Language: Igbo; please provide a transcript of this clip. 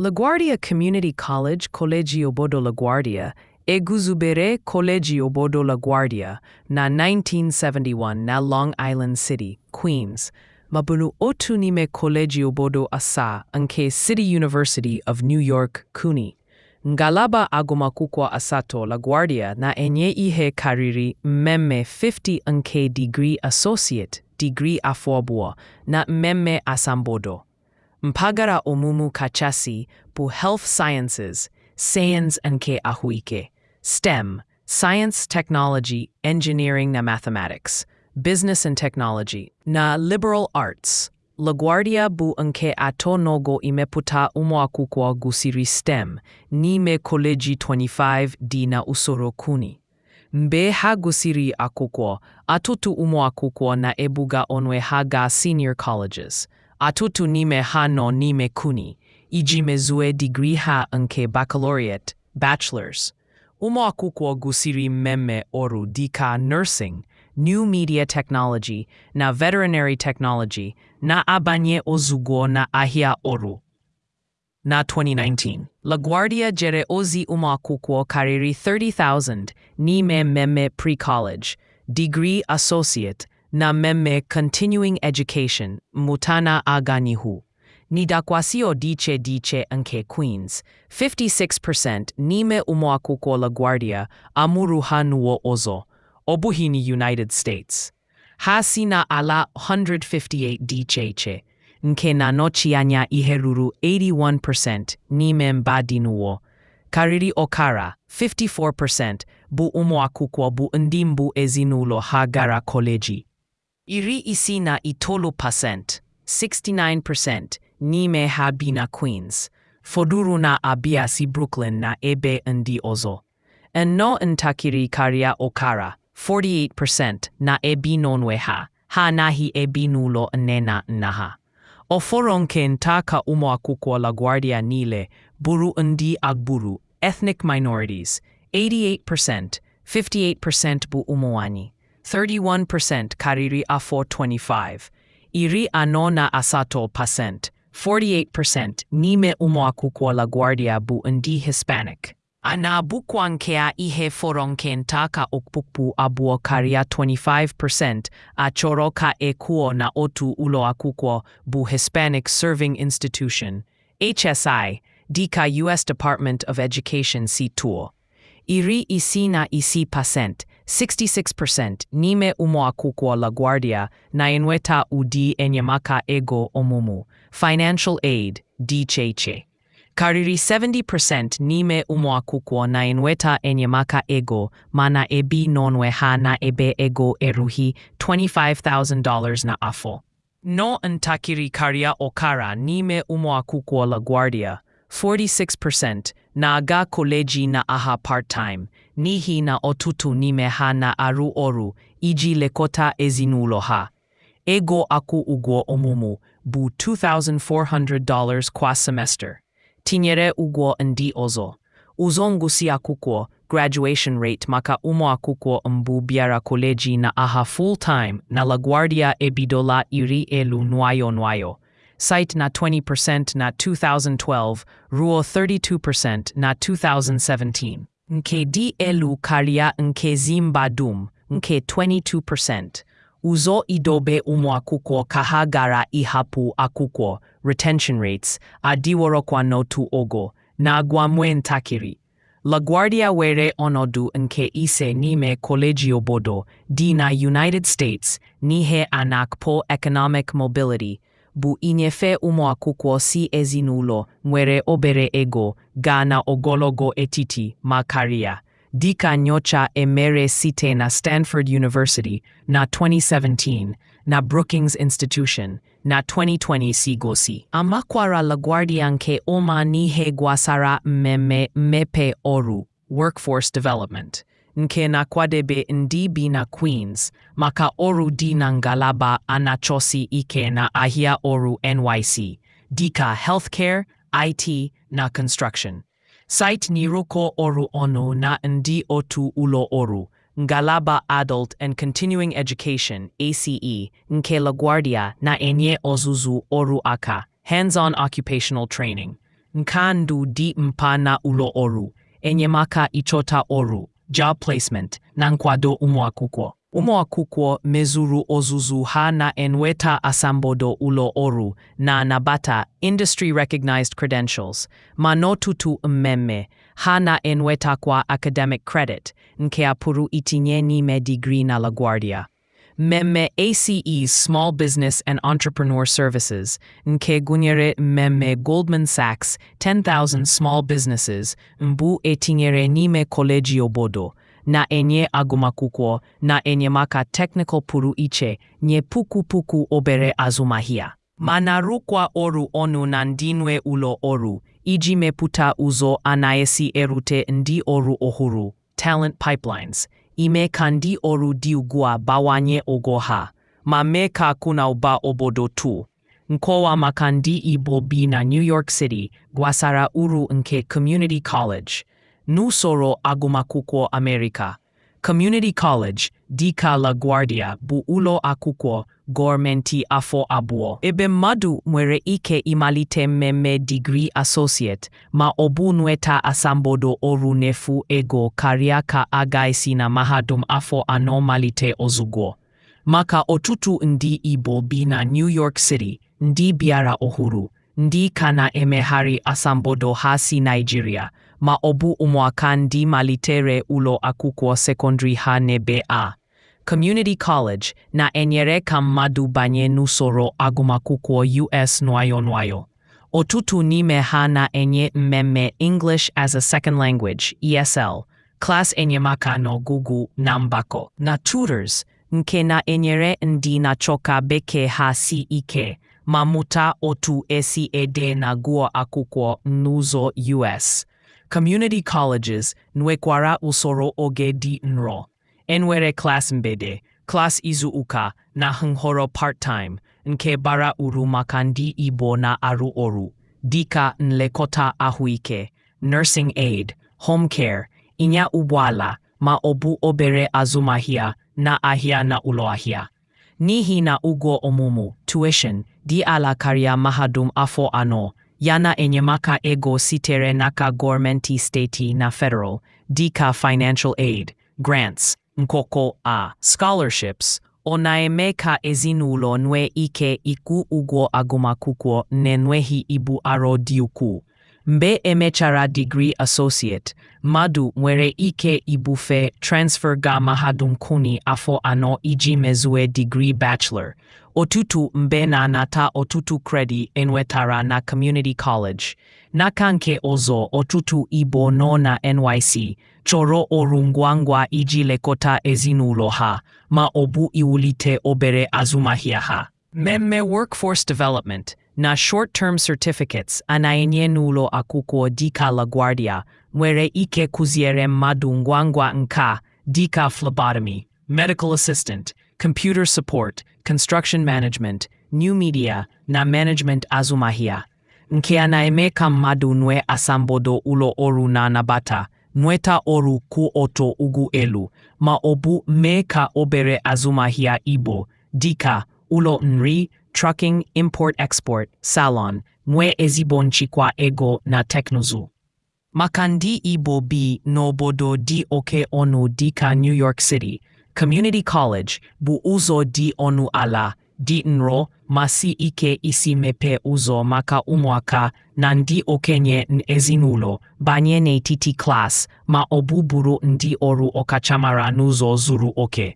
LaGuardia Community College, Koleji Bodo LaGuardia, Eguzubere Koleji Bodo LaGuardia, na 1971 na Long Island City, Queens, mabunu otu nime Koleji Obodo asa nke City University of New York, CUNY. Ngalaba agụmakwụkwọ asatọ LaGuardia na-enye ihe karịrị mmemme 50 nke digrii associate, digrii afọ abụọ, na mmemme asambodo. Mpaghara ọmụmụ kachasị bụ Health Sciences, sayensị nke ahụike, STEM, Science, Technology, Engineering na Mathematics, Business and Technology, na Liberal Arts. LaGuardia bụ nke atọ n'ogo imepụta ụmụakwụkwọ gụsiri STEM n'ime kọleji 25 dị na usoro kuni. Mgbe ha gụsịrị akwụkwọ, atụtụ ụmụakwụkwọ na-ebuga onwe ha gaa senior colleges. Atụtụ n'ime ha nọ n'ime kuni iji mezue digrii ha nke baccalaureate bachelors. Ụmụakwụkwọ gụsiri mmemme ọrụ dịka nursing, new media technology na veterinary technology na-abanye ozugbo na ahịa ọrụ. Na 2019, LaGuardia jere ozi ụmụakwụkwọ karịrị 30,000 n'ime mmemme pre-college, degree associate na mmemme Continuing Education Mutana aganihu N'ihu N'idakwasio Diche iche nke Queens, 56% n'ime ụmụakwụkwọ LaGuardia amụrụ ha n'ụwa ọzọ, ọ bụghị na United States. Ha si na ala 158 dị iche iche, nke na-anọchi anya ihe ruru 81% n'ime mba dị n'ụwa. Karịrị ọkara 54% bụ ụmụakwụkwọ bụ ndị mbụ ezinụlọ ha gara kọleji. iri isi na itolu pasent 69% n'ime ha bi na Queens fọdụrụ na abiasi si Brooklyn na ebe ndị ọzọ nnọọ ntakịrị karịa Okara 48% na ebi n'onwe ha ha anaghị ebi n'ụlọ nne na nna ha ọfọrọ nke nta ka ụmụakwụkwọ LaGuardia niile bụrụ ndị agbụrụ ethnic minorities 88% 58% bụ ụmụ nwanyị 31% kariri afo 25 iri anona asato percent 48% nime umoaku kwa LaGuardia bu ndi Hispanic. Ana bukwankea ihe foronkentaka okpukpu abuo karia 25% ka ekuo na otu uloakuko bu Hispanic Serving Institution, HSI, dika U.S. Department of Education si tuo. Iri isina isi pasent. 66% n'ime ụmụ akwụkwọ LaGuardia na-enweta ụdị enyemaka ego ọmụmụ financial aid dị iche iche. Karịrị 70% n'ime ụmụ na-enweta enyemaka ego mana ebi n'onwe ha na ebe ego erughị $25,000 n'afọ. Nọ ntakịrị karịa Okara n'ime ụmụ akwụkwọ LaGuardia, 46%, na-aga koleji na aha part-time n'ihi na ọtụtụ n'ime ha na-arụ ọrụ iji lekọta ezinụlọ ha. Ego akwụ ụgwọ ọmụmụ bụ $2,400 kwa semester, tinyere ụgwọ ndị ọzọ. Ụzọ ngụsị akwụkwọ graduation rate maka ụmụ akwụkwọ mbụ bịara koleji na aha full-time na LaGuardia ebidola iri elu nwayọ nwayọ site na 20% na 2012 ruo 32% na 2017. nke dị elu karịa nke Zimba dum nke 22%. Ụzọ idobe ụmụ akwụkwọ ka ha gara ịhapụ akwụkwọ retention rates kwa n'otu ogo na-agwamwe ntakịrị. LaGuardia were ọnọdụ nke ise n'ime koleji obodo dị na United States n'ihe anakpo Economic Mobility bụ inyefe ụmụakwụkwọ si ezinụlọ nwere obere ego gaa na ogologo etiti ma karịa dịka nyocha emere site na Stanford University na 2017 na Brookings Institution na 2020 si gosi. Amakwara LaGuardia nke ụma n'ihe gwasara mmemme mmepe ọrụ (workforce development). nke na-akwadebe ndị bi na Queens maka ọrụ dị na ngalaba anachosi ike na ahịa ọrụ NYC dịka healthcare, IT na construction. Site n'ịrụkọ ọrụ ọnụ na ndị otu ụlọ ọrụ ngalaba Adult and Continuing Education ACE nke LaGuardia na-enye ọzụzụ ọrụ aka hands-on occupational training, nka ndụ dị mpa na ụlọ ọrụ, enyemaka ịchọta ọrụ job placement na nkwado ụmụakwụkwọ ụmụakwụkwọ mezuru ọzụzụ ha na-enweta asambodo ụlọ ọrụ na-anabata industry recognized credentials ma n'ọtụtụ mmemme ha na-enwetakwa academic credit nke a pụrụ itinye n'ime digrii na LaGuardia. Memme ACE Small Business and Entrepreneur Services, nke gụnyere mmemme Goldman Sachs 10,000 Small Businesses mbụ etinyere n'ime kọleji obodo, na-enye agụmakwụkwọ na enyemaka teknịkal pụrụ iche nye puku puku obere azụmahịa, Mana na-arụkwa ọrụ ọnụ na ndị nwe ụlọ ọrụ iji mepụta ụzọ anaghịsi erute ndị ọrụ ọhụrụ (talent pipelines). ime ka ndị ọrụ dị ugbu a bawanye ụgwọ ha ma mee ka akụ na ụba obodo tu. Nkọwa maka ndị Igbo bi na New York City gwasara uru nke Community College n'usoro agụmakwụkwọ Amerịka. Community College dịka LaGuardia bụ ụlọ akwụkwọ gọọmenti afọ abụọ ebe mmadụ nwere ike ịmalite mmemme digrii associate ma ọ bụ nweta asambodo ọrụ n'efu ego karịa ka a esi na mahadum afọ anọ malite ozugbo. Maka ọtụtụ ndị Igbo bi na New York City, ndị bịara ọhụrụ, ndị ka na-emegharị asambodo ha si Naijiria. ma ọ bụ ụmụaka ndị malitere ụlọ akwụkwọ sekọndrị ha n'ebe a Community College na-enyere ka mmadụ banye n'usoro agụmakwụkwọ US nwayọ nwayọ. Ọtụtụ n'ime ha na-enye mmemme English as a Second Language ESL, klas enyemaka n'ọgụgụ na mgbakọ na tutors nke na-enyere ndị na achọka bekee ha si ike ma mụta otu esi ede na gụọ akwụkwọ n'ụzọ US. community colleges nwekwara usoro oge dị nro enwere Klas Mbede, Klas izu ụka na nhọrọ part-time nke bara uru maka ndị Igbo na-arụ ọrụ dịka nlekọta ahụike nursing aid home care ịnya ụgbọala ma ọ bụ obere azụmahịa na ahịa na ụlọ ahịa n'ihi na ụgwọ ọmụmụ tuition dị ala karịa mahadum afọ anọ yana enyemaka ego sitere n'aka gọọmenti steeti na federal dịka financial aid grants nkoko a scholarships ọ na-eme ka ezinụlọ nwee ike ịkwụ ụgwọ agụmakwụkwọ na-enweghị ibu arọ dị ukwuu mgbe emechara digrii associate mmadụ nwere ike ibufe transfer ga mahadum kuni afọ anọ iji mezue digrii bachelor Ọtụtụ Mbena na-anata ọtụtụ kredi enwetara na Community College. N'aka nke ọzọ ọtụtụ ibo nọ na NYC chọrọ ọrụ ngwa ngwa iji lekọta ezinụlọ ha ma ọ bụ iwulite obere azụmahịa ha. Mmemme Workforce Development na Short-Term Certificates a n'ụlọ akwụkwọ dịka LaGuardia nwere ike kụziere mmadụ ngwa ngwa nka dịka phlebotomy, medical assistant computer support, construction management, new media na management azụmahịa, nke a na-eme ka mmadụ nwee asambodo ụlọ ọrụ na-anabata nweta ọrụ kwụ ọtọ ugwu elu ma ọ bụ mee ka obere azụmahịa Igbo dịka ụlọ nri, trucking, import-export, salon nwee ezigbo nchịkwa ego na teknụzụ. Maka ndị Igbo bi n'obodo dị oke ọnụ dịka New York City Community College bụ ụzọ dị ọnụ ala dị nro ma si ike isi mepee ụzọ maka ụmụaka na ndị okenye ezinụlọ banye n'etiti klas ma ọ bụ ndị ọrụ ọkachamara n'ụzọ zuru oke.